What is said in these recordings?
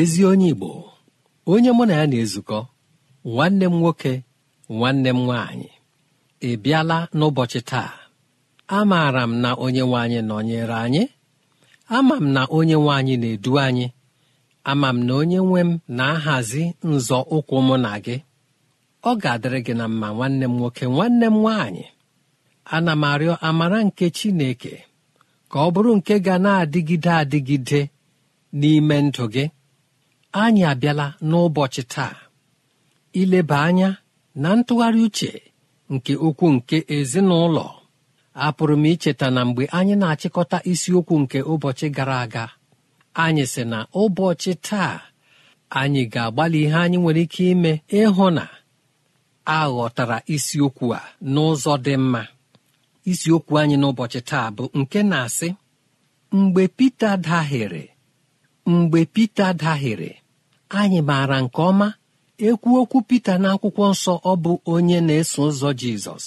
ezi onye Igbo onye mụ na ya na-ezukọ nwanne m nwoke nwanne m nwaanyị ị bịala n'ụbọchị taa amaara m na onye nwe nọnyere anyị ama m na onye nwe na-edu anyị ama m na onye nwe m na-ahazi nzọ ụkwụ mụ na gị ọ ga-adịrị gị na mma nwanne m nwoke nwanne m nwaanyị ana m arịọ amara nke Chineke ka ọ bụrụ nke ga na-adịgide adịgide n'ime ndụ gị anyị abịala n'ụbọchị taa ileba anya na ntụgharị uche nke okwu nke ezinụlọ apụrụ m icheta na mgbe anyị na-achịkọta isiokwu nke ụbọchị gara aga anyị sị na ụbọchị taa anyị ga-agbalị ihe anyị nwere ike ime ịhụ na a ghọtara isiokwu a n'ụzọ dị mma isiokwu anyị n'ụbọchị taa bụ nke na-asị mgbe Pita dahịrị mgbe Pita dahịrị anyị maara nke ọma ekwu okwu Pita n'akwụkwọ nsọ ọ bụ onye na-eso ụzọ Jizọs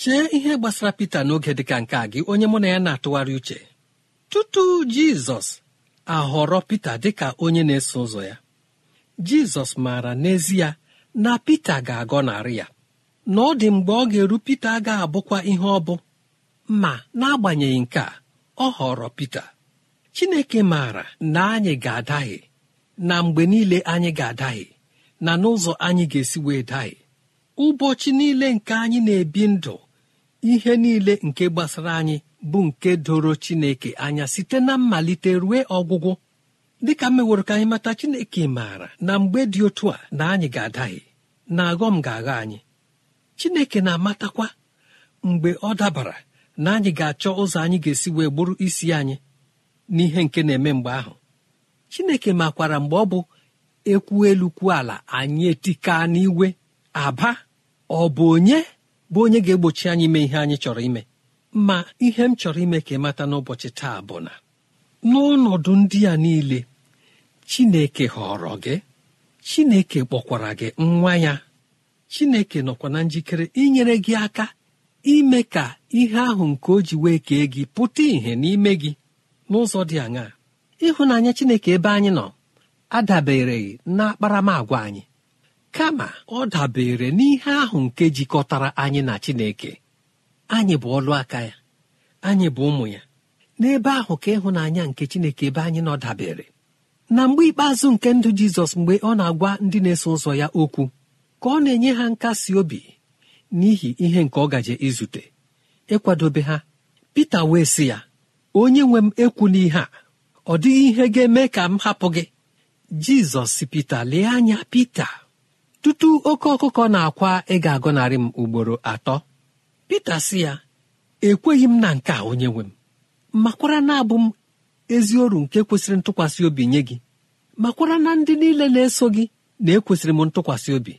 chee ihe gbasara Pita n'oge dịka nke a gị onye mụ na ya na-atụgharị uche tutu Jizọs ahọrọ Pita dịka onye na-eso ụzọ ya Jizọs maara n'ezie na Pita ga-agọnarị ya na ọ dị mgbe ọ ga-eru Pita ga-abụkwa ihe ọ bụ ma n'agbanyeghị nke a ọ họrọ Pita Chineke maara na anyị ga adaghị na mgbe niile anyị ga adaghị na n'ụzọ anyị ga-esi wee daghị, ụbọchị niile nke anyị na-ebi ndụ ihe niile nke gbasara anyị bụ nke doro chineke anya site na mmalite rue ọgwụgwụ dịka meworo ka anyị mata chineke maara na mgbe dị otu a na anyị ga adaghị na aghọm ga-agha anyị chineke na-amatakwa mgbe ọ dabara na anyị ga-achọ ụzọ anyị ga-esi wee gburu isi anyị n'ihe nke na-eme mgbe ahụ chineke makwara mgbe ọ bụ ekwu elu kwuo ala anyị etika n'iwe aba ọ bụ onye bụ onye ga-egbochi anyị ime ihe anyị chọrọ ime ma ihe m chọrọ ime ka ịmata n'ụbọchị taa bụ na n'ọnọdụ ndị a niile chineke họrọ gị chineke kpọkwara gị nwa ya chineke nọkwa na njikere inyere gị aka ime ka ihe ahụ nke o ji wee kee gị pụta ìhè n'ime gị n'ụzọ dị aṅaa ịhụnanya chineke ebe anyị nọ adabereghị na akparamagwa anyị kama ọ dabere n'ihe ahụ nke jikọtara anyị na chineke anyị bụ ọlụ aka ya anyị bụ ụmụ ya n'ebe ahụ ka ịhụnanya nke chineke ebe anyị nọ dabere na mgbe ikpeazụ nke ndụ jizọs mgbe ọ na-agwa ndị na-eso ụzọ ya okwu ka ọ na-enye ha nkasi obi n'ihi ihe nke ọ gaje izute ịkwadobe ha Peter wee si ya onye nwe m ekwula a ọ dịghị ihe ga-eme ka m hapụ gị jizọs si pita lee anya pita tutu oke ọkụkọ na-akwa ị ga narị m ugboro atọ pita si ya ekweghị m na nke a onye nwe m makwara na abụ m ezi oru nke kwesịrị ntụkwasị obi nye gị makwara na ndị niile na-eso gị na-ekwesịrị m ntụkwasị obi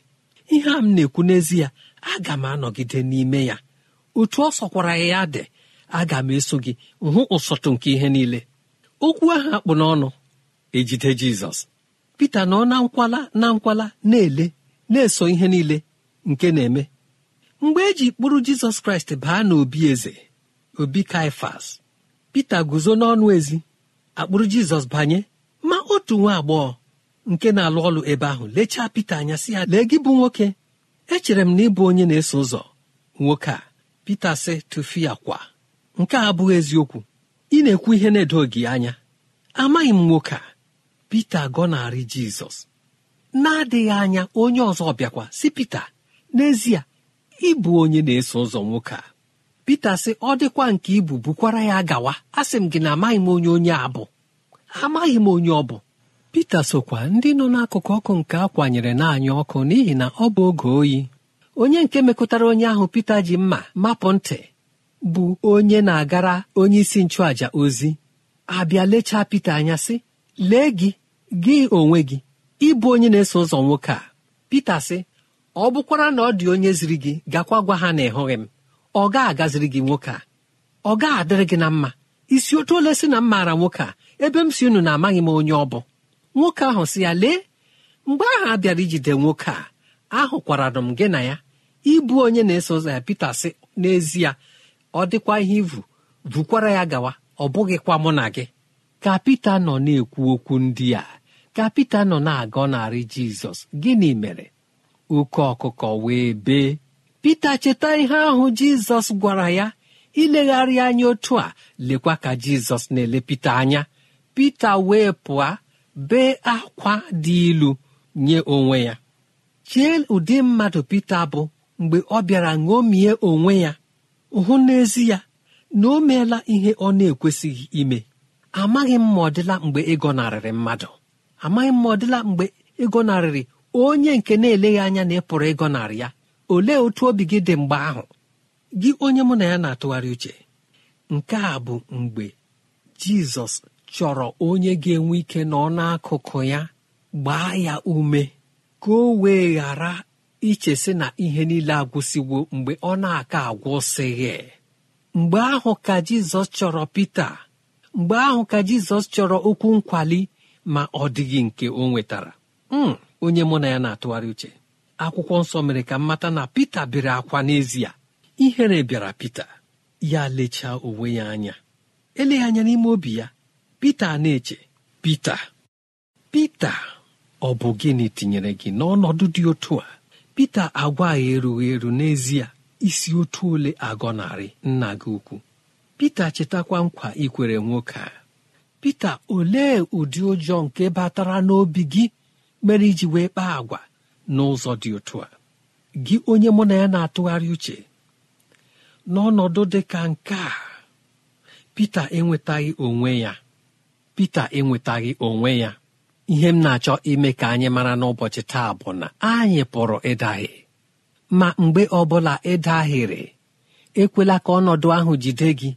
ihe a m na-ekwu n'ezie aga m anọgide n'ime ya otu ọ sọkwara ya dị aga m eso gị hụ ụsọtụ nke ihe niile okwu ahụ akpụ n'ọnụ ejide jizọs pita nọ na nkwala na nkwala na-ele na-eso ihe niile nke na-eme mgbe eji kpụrụ jizọs kraịst baa n'obi eze obi kaifas pita guzo n'ọnụ ezi akpụrụ jizọs banye ma otu nwa agbọghọ nke na-alụ ọlụ ebe ahụ lechaa pita anya si ya lee gị bụ nwoke echere m na ịbụ onye na-eso ụzọ nwoke a pita sị tụfia kwa nke a abụghị eziokwu ị na-ekwu ihe na-edo gị anya amaghị m nwoke a Pita gọnarị Jizọs na-adịghị anya onye ọzọ bịakwa si Pita n'ezie ịbụ onye na-eso ụzọ nwoke a Pita sị ọ dịkwa nke ibu bukwara ya gawa asị m gị na amaghị m onye onye a bụ amaghị m onye ọ bụ Pita sokwa ndị nọ n'akụkụ ọkụ nke a kwanyere naanị ọkụ n'ihi na ọ bụ oge oyi onye nke mekọtara onye ahụ Pita ji mma mapụ ntị bụ onye na-agara onye isi nchụàjà ozi abịa lechaa Pita anya sị lee gị gị onwe gị ịbụ onye na-eso ụzọ nwoke a Pita sị ọ bụkwara na ọ dị onye ziri gị gakwa gwa ha na ịhụghị m ọ ga-agaziri gị nwoke a ọ ga-adịrị gị na mma isi otu ole si na m maara nwoke a ebe m si unu na-amaghị m onye ọ bụ nwoke ahụ si ya lee mgbe ahụ a bịara ijide nwoke a ahụkwara m gị na ya ịbụ onye na-eso ụzọ ya Pita sị n'ezie ọ dịkwa ihe ivu vukwara ya gawa ọ bụghịkwa mụ na gị ka Pita nọ na-ekwu okwu ndị a ka Pita nọ na agọ narị Jizọs gịnị mere oke ọkụkọ wee bee Pita cheta ihe ahụ Jizọs gwara ya ilegharị anya otu a lekwa ka Jizọs na-ele anya Pita wee pụọ bee akwa dị ilu nye onwe ya chee ụdị mmadụ Pita bụ mgbe ọ bịara ṅomie onwe ya hụ n'ezi ya na o meela ihe ọ na-ekwesịghị ime amaghị m ma ọ dịla mgbe ịgọnarịrị mmadụ amaghị m ma ọ dịla mgbe ịgọnarịrị onye nke na-eleghị anya na ị pụrụ ịgọnarị ya olee otu obi gị dị mgbe ahụ gị onye mụ na ya na-atụgharị uche nke a bụ mgbe jizọs chọrọ onye ga-enwe ike nọ n'akụkụ ya gbaa ya ume ka o wee iche sị na ihe niile agwụsịwo mgbe ọ na-aka agwụsịghị mgbe ahụ ka jizọs chọrọ pita mgbe ahụ ka jizọs chọrọ okwu nkwali ma ọ dịghị nke o nwetara hmm, onye mụ na ya na-atụgharị uche akwụkwọ nsọ mere ka mmata na pita bere akwa n'ezie ihere bịara pita ya lechaa onwe ya anya eleghị anya n'ime obi ya pita na-eche pita pita ọ bụ gịnị tinyere gị n'ọnọdụ dị otu a pita agwa ya erughị eru n'ezie isi otu ole agọnarị nna gị ukwu pita chetakwa nkwa ikwere nwoke a pita olee ụdị ụjọ nke batara n'obi gị mere iji wee kpaa agwa n'ụzọ dị otu a gị onye mụ na ya na-atụgharị uche n'ọnọdụ dị ka nke a pita enwetaghị onwe ya pita enwetaghị onwe ya ihe m na-achọ ime ka anyị mara n'ụbọchị taa bụ na anyị pụrụ ịdahie e ma mgbe ọbụla ịdahịrị e ekwela ka ọnọdụ ahụ jide gị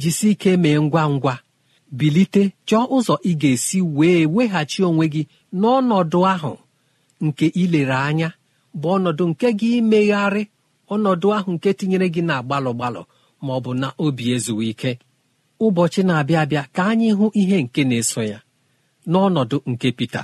jisi ike mee ngwa ngwa bilite chọọ ụzọ ị ga-esi wee weghachi onwe gị n'ọnọdụ ahụ nke ilere anya bụ ọnọdụ nke gị imegharị ọnọdụ ahụ nke tinyere gị na gbalụ gbalụ ma ọ bụ na obi ezughị ike ụbọchị na-abịa abịa ka anyị hụ ihe nke na-eso ya n'ọnọdụ nke pita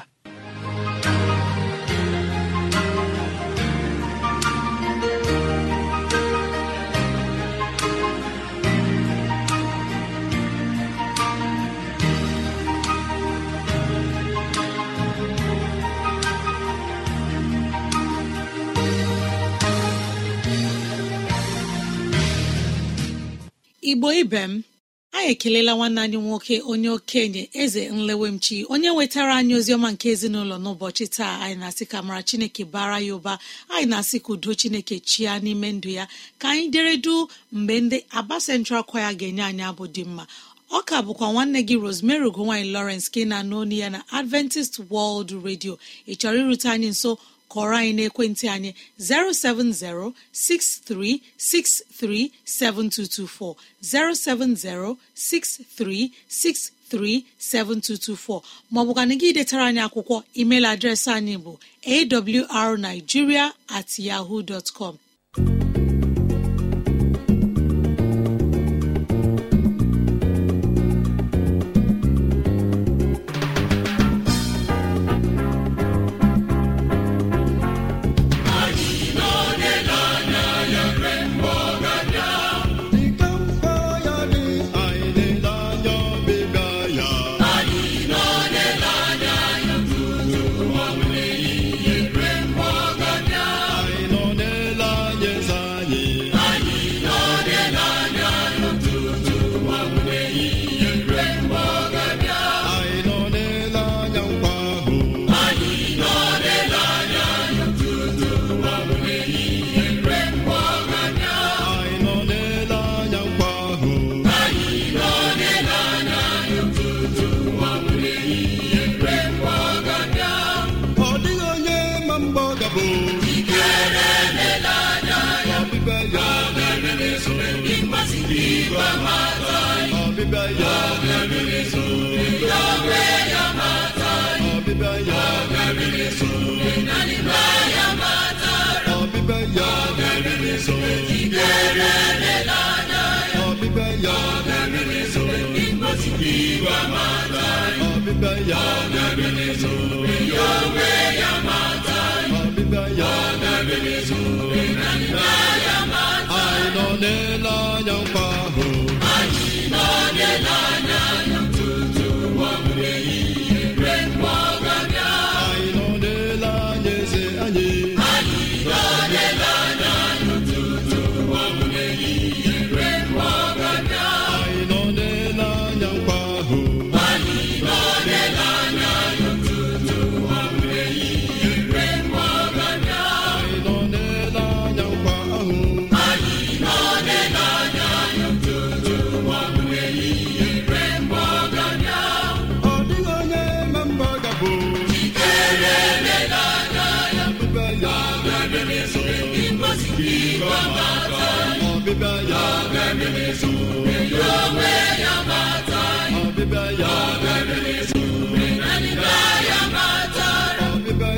igbo ibe m anyị ekelela nwanne anyị nwoke onye okenye eze nlewemchi onye nwetara anyị oziọma nke ezinụlọ n'ụbọchị taa anyị na-asị ka mara chineke bara ya ụba anyị na-asị ka udo chineke chia n'ime ndụ ya ka anyị deredu mgbe ndị aba central kwaya ga-enye anyị abụ dị mma ọ ka bụkwa nwanne gị rosemary nwanyị lawrence ka ị na-anụ ya na adventist world redio ị chọrọ irute anyị nso kọrọ anyị n'ekwentị anyị 070 6363 7224 070 6363 7224 maọbụkana gị detara anyị akwụkwọ email adreesị anyị bụ awrnigeria at yahoo dot com ya meriri so ọbịbịa ya meriri so iwa mata ọbịbịa ya meriri so ya onwe ya mata ọbịbịa ya meriri so ya mata anyị nọ n'ele anya nkwa ahụ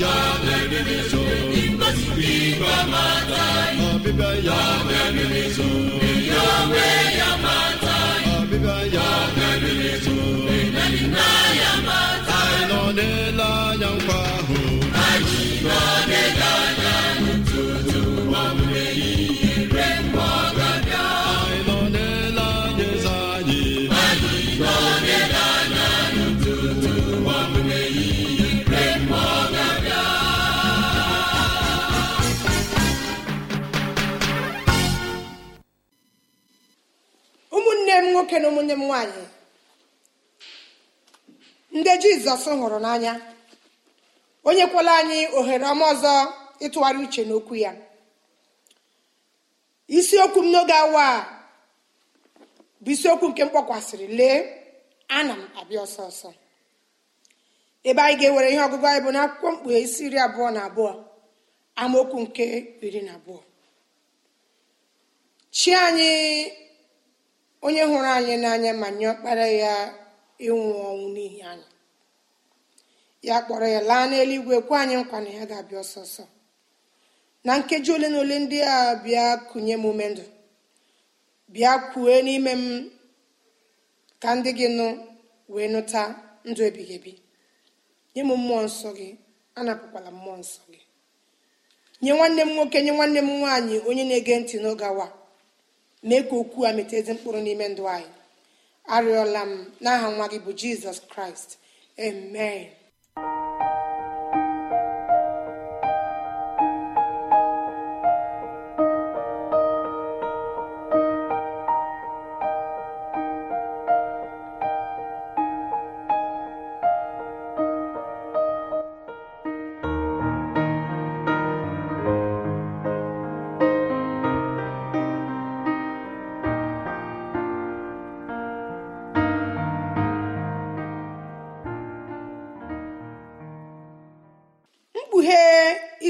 ya ọbịbịa ya na ya nọ n'ele anya nkwa ahụ anyị nọ n'ele anya jizọs hụrụ n'anya onye nyekwala anyị ohere ọma ọzọ ịtụgharị uche n'okwu ya isiokwu m n'oge awa a bụ isiokwu nke m kpọkwasịrị lee ana m abịa ọsọ ọsọ ebe anyị ga-ewere ihe ọgụgụ anyị bụ n'akwụkwọ mkpughe isi iri abụọ na abụọ amaokwu nke iri na abụọ chi anyị onye hụrụ anyị n'anya ma nye ọkpara ya ịnwụ ọnwụ n'ihi anyị ya kpọrọ ya laa n'eluigwe kwe anyị nkwa na ya ga-abịa ọsọsọ na nkeji ole na ole ndị a bịa kụnye m ume ndụ bịa kwue n'ime m ka ndị gị nụ wee nụta ndụ ebighị ebi nye m mmụọ nsọ gị anapụkwala mmụọ nsọ gị nye nwanne m nwoke nye nwanne m nwaanyị onye na-ege ntị n'oge awa mee ka okwu a meta ezi mkpụrụ n'ime ndụ anyị arịọla m n'aha nwa gị bụ jizọs kraịst amen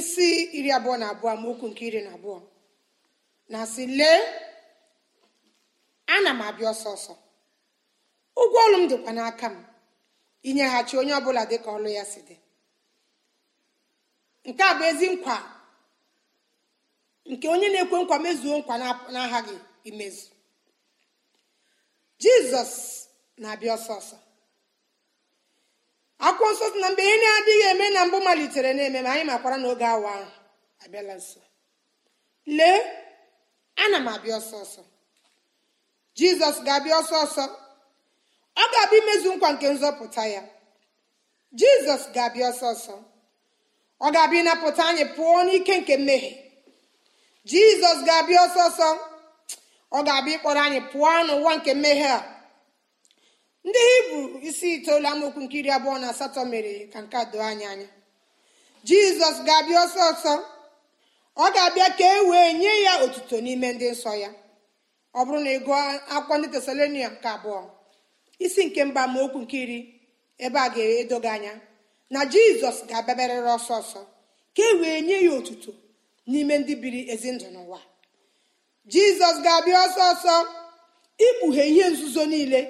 isi iri abụọ na abụọ okwu nke iri na abụọ na asị lee ana m abịa ọsọ ọsọ ụgwọ ọrụ m dịkwa n'aka m inyeghachi onye ọbụla dịka ọlụ ya si dị nke a bụ ezi nkwa nke onye na-ekwe nkwa mezuo nkwa na n'aghaghị imezu jizọs na-abịa ọsọ ọsọ akwụkwọ nsọ na mgbe ihe na-adịghị eme na mbụ malitere na-eme ma anyị makwara n'oge awa ahụ abịala nso lee ana m abịa ọsọ ọsọ jizọs ga-abịa ọsọ ọsọ ọ ga-abịa imezu nkwa nke nzọpụta ya jizọs ga-abịa ọsọ ọsọ ọ ga-abịa ịnapụta anyị pụọ n'ike nke mmehie jizọs ga-abịa ọsọ ọsọ ọ ga-abịa ịkpọrọ anyị pụọ n'ụwa nke mmehie a ndị hibru isi itoolu amaokwu nke iri abụọ na asatọ mere ka nke a doo anya anya jizọs ga-abịa ọsọ ọsọ ọ ga-abịa ka e wee nye ya otuto n'ime ndị nsọ ya ọ bụrụ na ị gụọ akwụkwọ ndị tesalonia nke abụọ isi nke mba amaokwu nke iri ebe a ga-edoga anya na jizọs ga-abịabarịrị ọsọ ọsọ ka e wee nye ya otuto n'ime ndị biri ezi ndụ n'ụwa jizọs ga-abịa ọsọ ọsọ ikpughe ihe nzuzo niile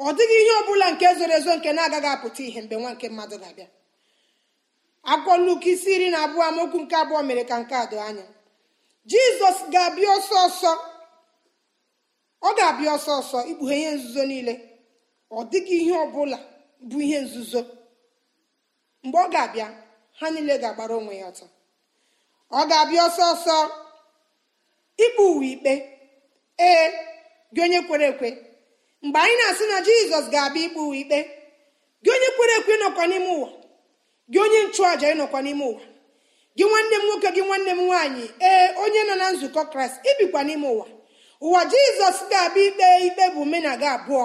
ọ dịghị ihe ọ bụla nke zoro ezo nke na-agaghị apụta ihe mgbe nwa nke mmadụ ga-abịa akwụkwọ Luk isi iri na abụọ amaokwu nke abụọ mere ka nke a doo anya jizọs ga-abịa ọsọ ọsọ ọ ga-abịa ọsọ ọsọ ikpughe ihe nzuzo niile ọ dịghị ihe ọ bụla bụ ihe nzuzo mgbe ọ ga-abịa ha niile ga-agbara onwe ya ọtọ ọ ga-abịa ọsọ ọsọ ikpe uwe ikpe ee gị onye kwere ekwe mgbe anyị na-asị na jizọs ga-abịa ikpe ikpe gị onye kwere ekwe ịnọkwa n'ime ụwa gị onye nchụàja ịnọkwa n'ime ụwa gị nwanne m nwoke gị nwanne m nwaanyị ee onye nọ na nzukọ kraịst ibikwa n'ime ụwa ụwa jizọs ga-abịa ikpe ikpe bụ gị abụọ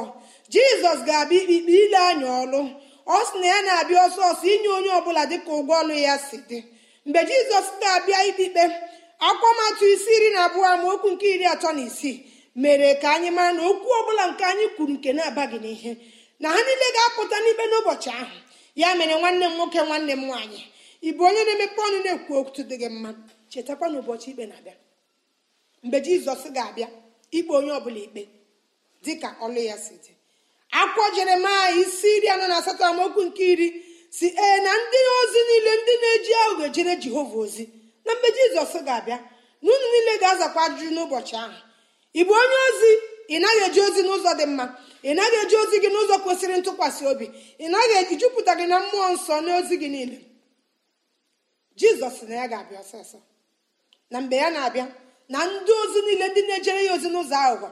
jizọs ga-abịa ikpe ikpe ile anya ọlụ ọ sị na ya na-abịa ọsọ ọsọ inye onye ọbụla dịka ụgwọ ọlụ ya si dị mgbe jizọs ga-abịa ikpe ikpe akwụkwọ isi iri na abụọ amaokwu nke iri atọ na isii mere ka anyị mara na okwu ọbụla nke anyị kwuru nke na-abaghị n'ihe na ha niile ga-apụta n'ikpe n'ụbọchị ahụ ya mere nwanne m nwoke nwanne m nwaanyị ị bụ onye na-emepe ọnụ na-ekwu okwu dị gị mma chetakwa na ụbọchị ikpe na-abịa mgbe jizọs ga-abịa ikpe onye ọbụla ikpe dị ka ọlụ ya si dị akwụkwọ jeremaya isi iri anọ na asatọ amaokwu nke iri si ee na ndị ozi niile ndị na-eji aghụghọ ejere jehova ozi na mgbe jizọs ga-abịa na unu niile ga-azakwa ajụjụ n'ụbọchị ahụ ị bụ onye ozi ị naghị eji ozi n'ụzọ dị mma ị naghị eji ozi gị n'ụzọ kwesịrị ntụkwasị obi ị naghị eji jupụta gị na mmụọ nsọ n'ozi gị niile jizọs na ya ga-abịa ọsọsọ na mgbe ya na-abịa na ndị ozi niile ndị na-ejere ya ozi n'ụzọ aghụghọ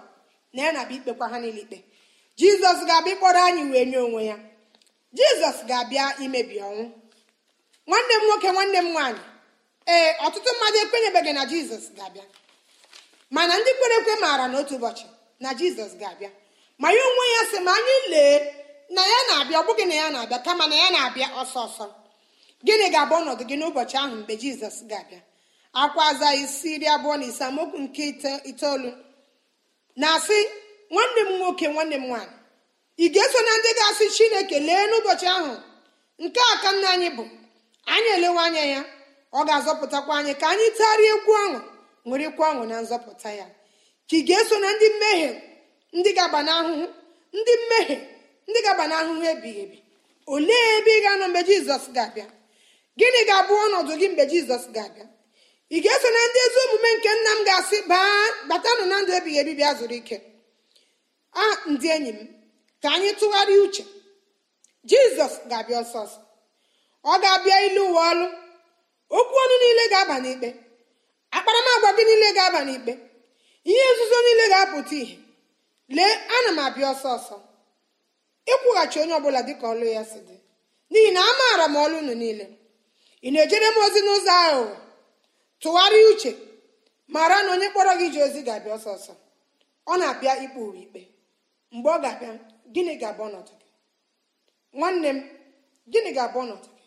na ya na-abịa ikpekwa ha niile ikpe jizọs ga-abịa ịkpọrọ anyị wee nye onwe ya jizọs ga-abịa imebi ọnwụ nwanne m nwoke nwanne m nwaanyị ee ọtụtụ mmadụ ekwenyebeghị na jizọs ga-abịa mana ndị kwere ekwe maara n'otu ụbọchị na jizọs ga-abịa ma ya onwe ya sị ma anyị lee na ya na-abịa ọ bụghị na ya na-abịa kama na ya na-abịa ọsọ ọsọ gịnị ga-abụ ọnọdụ gị n'ụbọchị ahụ mgbe jizọs ga-abịa akwa aza isi iri abụọ na ise amaokwu nke itoolu na-asị nwanne m nwoke nwanne m nwaanyị ị ga-eso na ndị ga-asị chineke lee n'ụbọchị ahụ nke a ka nna anyị bụ anyị elewe anya ya ọ ga-azọpụtakwa anyị ka anyị tagharịa egwu ọṅụ ṅụrịkwa ọṅụ na nzọpụta ya ka ị ga-eso na ndị mmehie ndị gaba n'ahụhụ ndị mmehie ndị ga n'ahụhụ ebighị ebi olee ebe ị ga-anọ mgbe jizọs ga-abịa gịnị ga-abụ ọnọdụ gị mgbe jizọs ga-abịa ị ga-eso na ndị ezi omume nke nna m ga-asị baa batanụ na ndụ ebighị ebi bịa zuru ike a ndị enyi m ka anyị tụgharịa uche jizọs ga-abịa ọsọ ọ ga-abịa ilu ụwa ọlụ okwu ọnụ niile ga-aba n'ikpe akparamagwa gị niile ga-aba n'ikpe ihe nzuzo niile ga-apụta ihe lee ana m abịa ọsọ ọsọ ịkwụghachi onye ọbụla dịka ọlụ ya si dị n'ihi na amaara m ọlụ unu niile ị na-ejere m ozi n'ụzọ aghụghọ tụgharịa uche mara na onye kpọrọ gị ji ozi ga-abịa ọsọ ọsọ ọ na-abịa ikpe ikpe mgbe ọ ga-abịa gịnị ga-abụ ọnọdụ gị nwanne m gịnị ga-abụ ọnọdụ gị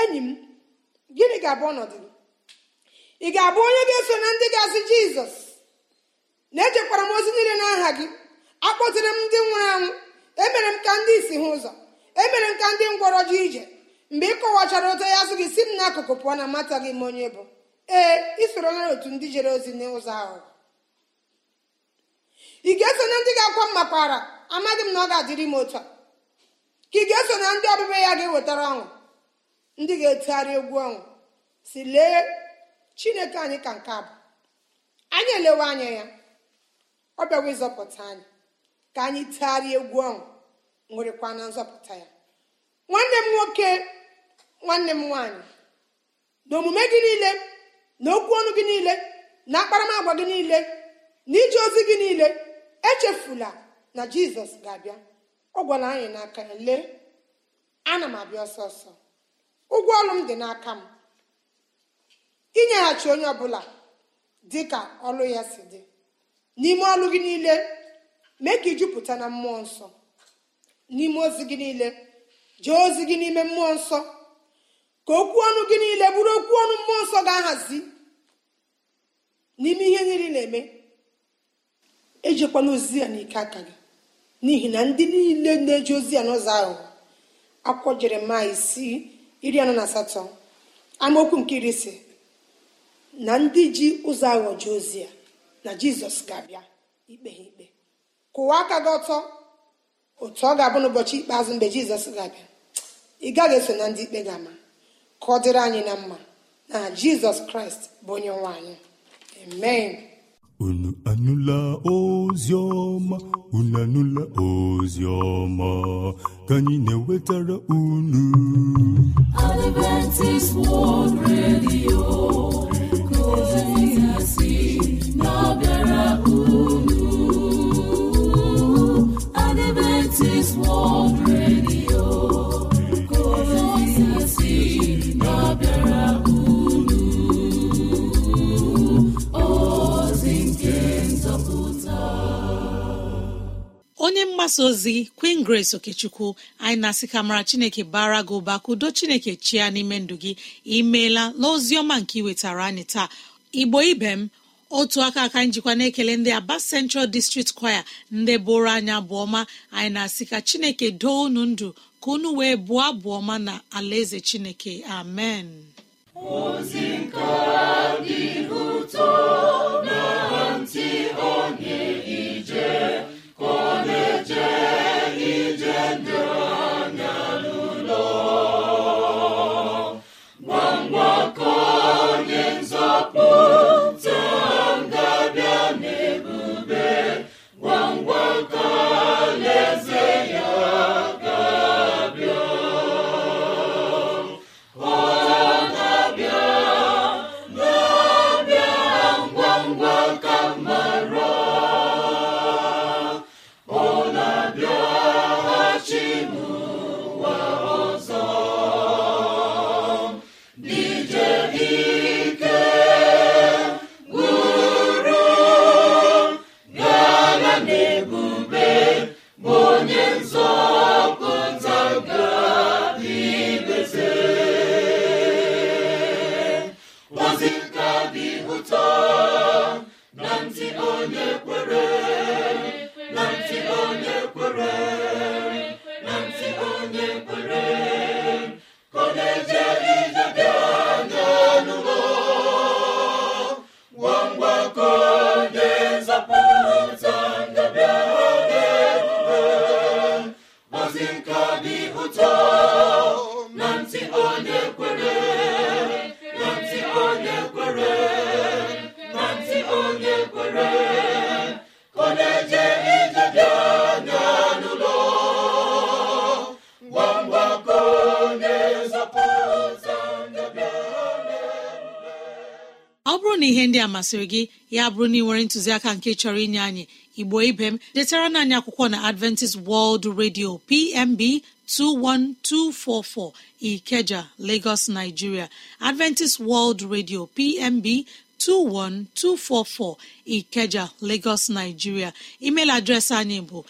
enyi m gịnị ga-abụ ọnọdụ gị ị ga-abụ onye ga-eso na ndị ga-asị jizọs na-echekwara m ozi niile n'aha gị akpọtiri m ndị nwụrụ anwụ emere m ka ndị isi hụ ụzọ emere m ka ndị ngwọrọ ji ije mgbe ị kọwachara ụtọ ya sị gị si m n'akụkụ pụọ na mmata gị m onye bụ ee ị sorola otu ndị jere ozi n'ụzọ ahụ ị ga-eso na ndị ga-akwa m makwara amadị m na ọ ga-adịrị m otu a ka ị ga-eso na ndị ọbịbịa ya ga-ewetara ọnwụ ndị ga-etegharị egwu ọnwụ si lee chineke anyị ka nke abụ anyị elewe anya ya ọ bịawa ịzọpụta anyị ka anyị tegharịa egwu ọṅụ nwerekwa na nzọpụta ya nwanne m nwoke nwanne m nwaanyị na omume gị niile na okwu ọnụ gị niile na akparamagwa gị niile na ije ozi gị niile echefula na jizọs ga-abịa ọ gwara anyị n'aka ya lee ana m abịa ọsọ ọsọ ụgwọ ọrụ m dị n'aka m inyeghachi onye ọbụla dị ka ọlụ ya si dị n'ime ọlụ gị niile mee ka ijupụta na mmụọ nsọ n'ime ozi gị niile jee ozi gị n'ime mmụọ nsọ ka okwu ọnụ gị niile bụrụ okwu ọnụ mmụọ nsọ ga-ahazi n'ime ihe niile na-eme ejikwala ozi ya n'ike aka gị n'ihi na ndị niile na-eji ozi ya n'ụzọ ahụ akwụkwọ jeremaya isi iri anọ na asatọ amaokwu nke iri ise na ndị ji ụzọ aghọji ozi ya na jizọs ga-abịa ikpe ha ikpe kụwa aka gị ọtọ otu ọ ga-abụ n'ụbọchị ikpeazụ mgbe jizọs ga-abịa ị gaghị eso na ndị ikpe ga-ama ka ọ dịrị anyị na mma na jizọs kraịst bụ onye nwe anyị amen unu anụla ozi ọma unu anụla ozi ọma ka anyị na-ewetara unu Adventist World Radio onye mgbasa ozi queen grace okechukwu anyị na-asị ka mara chineke bara gị ụba kudo chineke chia n'ime ndụ gị imeela n'ozi ọma nke iwetara anyị taa igbo ibe m otu aka aka njikwa na-ekele ndị aba central district choir ndị bụrụ anya ọma anyị na-asị ka chineke doo unu ndụ ka unu wee bụọ abụọma na alaeze chineke amen ntị onye ije masịrị gị ya bụrụ na ị nwere ntụziaka nke chọrọ inye anyị igbo ibe m detara na anyị akwụkwọ na adventist world radio pmb 21244 ikeja lagos nigeria adventist world radio pmb 21244 Ikeja Lagos Nigeria email adreesị anyị bụ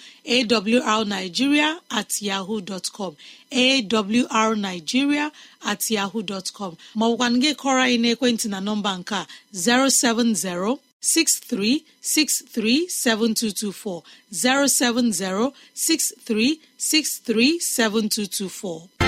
awrnigeria at yahoo dot com awrnigeria at yahoo dot com maọbụkwa gị kọrọ anyị n'ekwentị na nọmba nke a 070 7224 070 7224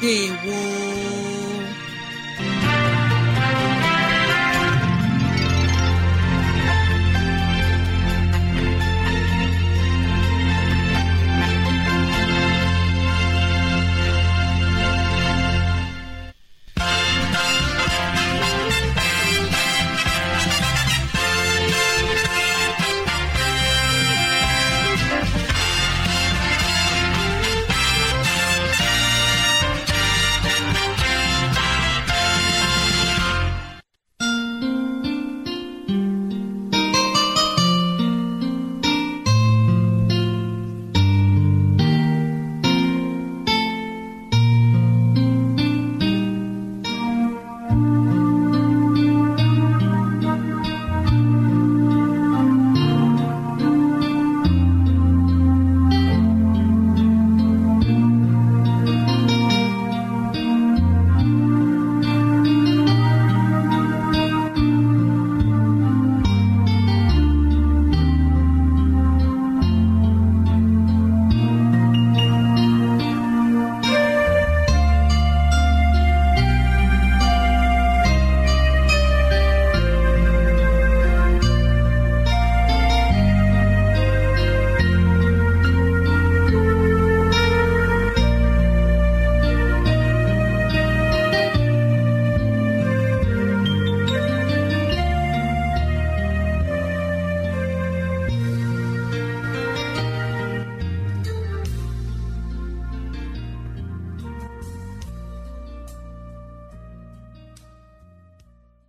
ndewo